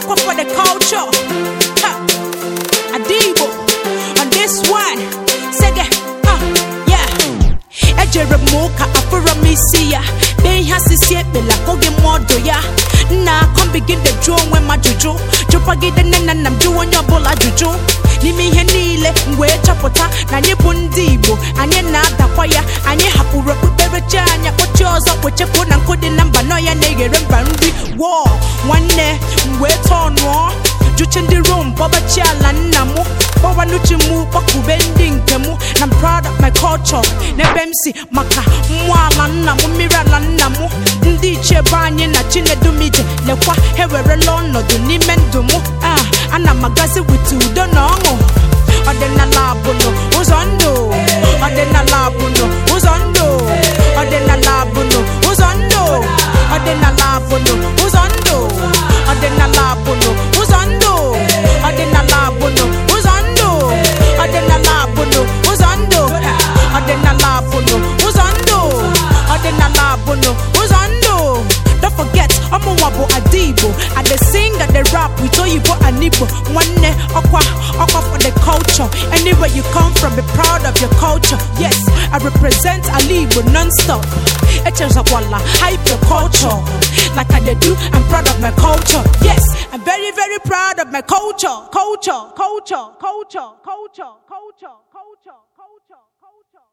Aqua for the culture. Ha. Adibo on this one. Sege, ha, yeah. Ejere moka afura misi ya. Ben ha oh, sisi ebela koge modo ya. Na come begin the draw when my juju. Jupagide nena nam juwa nyobola n'ime ihe niile mgbe chọpụta na anyị bụ ndị Igbo anyị na-adakwa ya anyị hapụrụ okpukperechi anya kpochie ọzọ kpochapụ na nkụ na mba nọ ya na-eghere mba nri wọọ nwanne eh. wee nụọ juche ndị rom gbabachi ala nna m gbawanuchi mụ ndị nke m na proud of my culture n'ebe m si maka mmụọ ala nna m mmiri ala nna m ndị ichie ebe anyị na chinedumije lekwa ewere ewerela ọnọdụ n'ime ndụ mụ ah, ana m agazi wit udo na ọṅụ ọdịnala abụnụ ụzọ ndụ ọdịnala ụzọ ndụ ọdịnala abụnụ ụzọ ndụ ọdịnala abụnụ ụzọ ndụ ọdịnala abụnụ ụzọ ndụ ọdịnala abụnụ ụzọ ndụ ọdịnala abụnụ ụzọ ndụ don't forget ọmụnwa bụ ada i dey sing i dey rap with oyibo and igbo nwanne ọkwa ọkwa for the culture anywhere you come from be proud of your culture yes i represent ala igbo non-stop echezakwala hype your culture like i dey do i'm proud of my culture yes very, very proud of my culture, culture, culture, culture, culture, culture, culture, culture, culture.